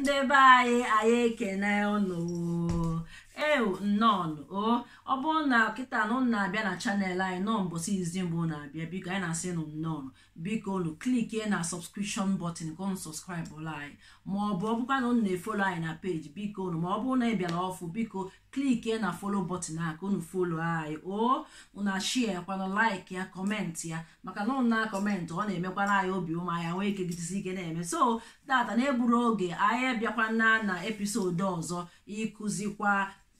ndị be anyị anyị ekene unu ewu o ọ bụrụ na kịta na ụnụ na-abịa na chanel anyị nọ mbọsị izi mbụ na-abịa biko anyị na-asị nụ nnọọ biko unu klikie na sọbskripshọn bọtịn ka unu ụlọ anyị ma ọ bụ ọ bụkwa na unu na-efolo anyị na peji biko unu ma ọ bụrụ na ị bịara ọfụ biko kliki na folo bọtịn a ka unu folo anyị o unu ashie kwana laik ya kọmentị ya maka na unu na ọ na-emekwara anyị obi ụmụ anyị nwee ike gidesi ike na-eme so tata na-egburu oge anyị bịakwana na episod ọzọ ịkụzikwa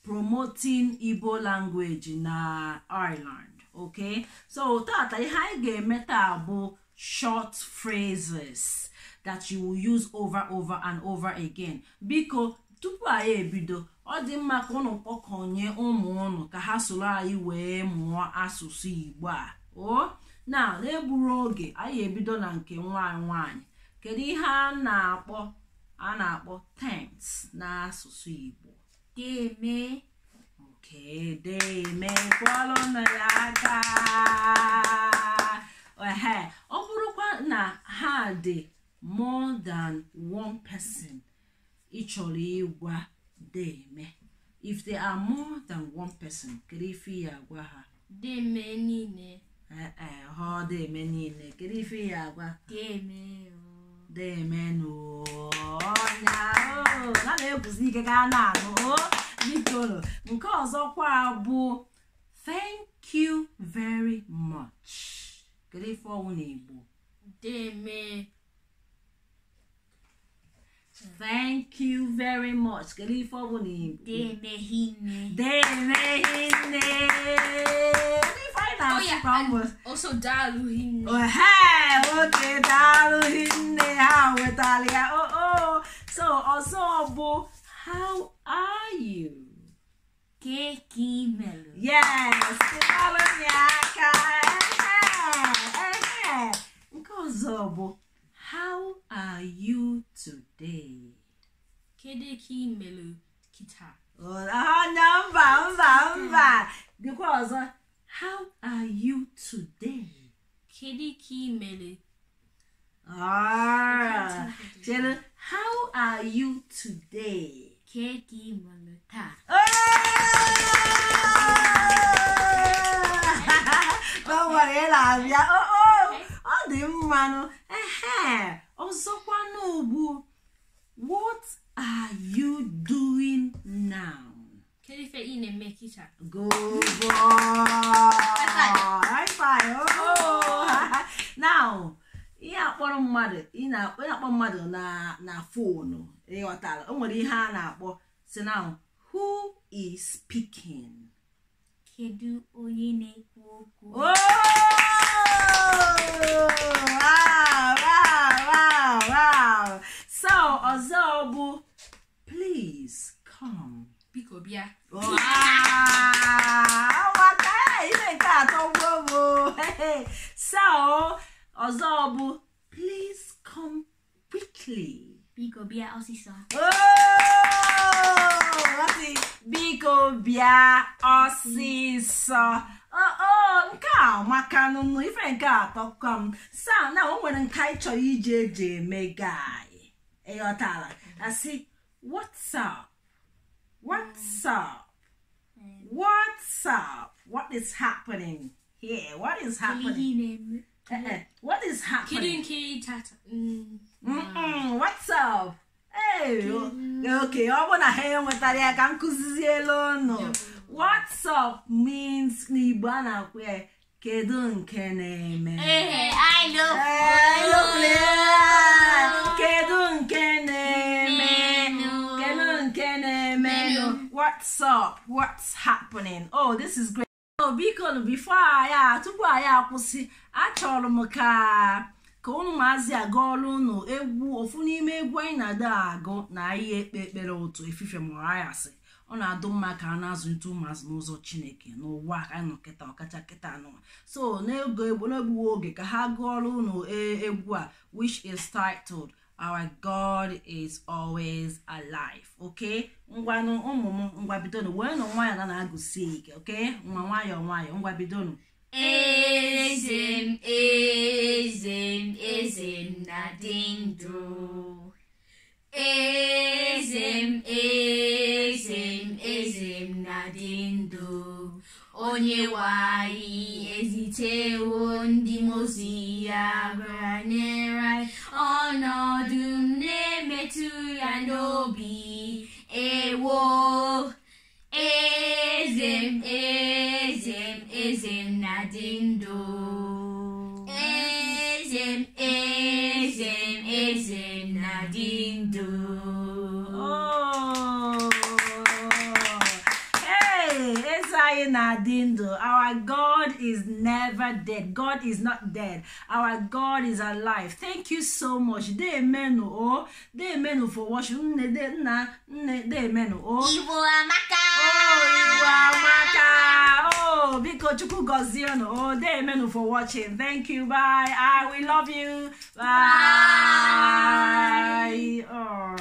promoting igbo language na ireland ok so tata ihe anyị ga-eme taa bụ short phrases that you will use over over and over again biko tupu anyị ebido ọ dị mma ka ụnụ kpọkọnye ụmụ ụnụ ka ha soro anyị wee mụọ asụsụ igbo a o na na-egburu oge anyị ebido na nke nwanyị nwanyị kedu ihe a na-akpọ a na-akpọ tense n'asụsụ igbo deme nke deme kwọlụnụ ya aka ọ bụrụkwa na ha dị more than one person ị chọrọ ịgwa deme if they are more than one person kedu ife ya agwa ha deme niile ha ọ deme niile kedu ife ya agwa deme demenụ ọnya na na-ekwuzi ike ka a na-anụ bidoro nke ọzọkwa bụ thank you very much kedu na igbo deme thank you very much kedu ife ọ bụ igbo daalụ hinne. ha nwetara ya so ọzọ bụ How are you? Qué kímelo. Yes, kụwalụ ya aka. Ehe, nke ọzọ bụ How are you today? Kedu ka imelu kita? Anya mba mba mba. Dịkwa ọzọ. How are you today? Kedu ka imelu? Ah, chere. 케이크만을 타. o na-abịa ọ dị mmanụ ọzọkwanụ ugbu what are you doing now? mmadụ na-akpọ ịghọtara o nwere ihe a na-akpọ si na who is speaking kedu onye na-ekwu okwu oh! so ọzọ bụ please come biko bịa eh, atọ so ọzọ bụ please come quickly bia Osisa. Oh! Lati bia Osisa. Oh, oh, nke a maka nụnụ ife nke atọ sa na o nwere nka ị chọrọ iji eji eme gị ịghọtala what's up what's up what's up what is happening here what is happening uh -uh. what is happening okay ọ bụ hear you enwetara ya ka m kụziziela ụnụ what's up means n'igbo a na-akwụ ya I know, na-eme kedu nke na-eme what's up what's happening oh this is great Oh, before biko bifo ya tupu anyị akwụsị achọrọ m ka ka ụmụazị maazị aga ọrụ ụnụ egwu ofu n'ime egwu anyị na adị agụ na ihe ekpe ekpere ụtụ efife mụrụ ọ na-adụ mma ka a na-azụlite ụmụazụ n'ụzọ chineke n'ụwa ka anyị nọ kịta ọkacha kịta anọ so n'egbughị oge ka ha gụọ ọrụ ụnụ egwu a which is titled our god is always alive ok? ngwanụ ụmụ m ngwabidonu wee nụ nwayọ na na-agụsi ike okay nwa nwayọ nwayọ ngwabidonu eze eze da ding do. Ezem, ezem, ezem na ding do. Onye wai ezite ndị mozi ya Ono ọnọdụ m ya n'obi ewo ezem ezem ezem na Oh. Hey, Isaiah Nadindo. Our God is never dead. God is not dead. Our God is alive. Thank you so much. They menu oh. They menu for watching. They menu oh. Iwo Amaka. Oh, Iwo Amaka. Oh, Biko Chuku Goziano. Oh, they menu for watching. Thank you. Bye. I ah, we love you. Bye. Bye. Oh.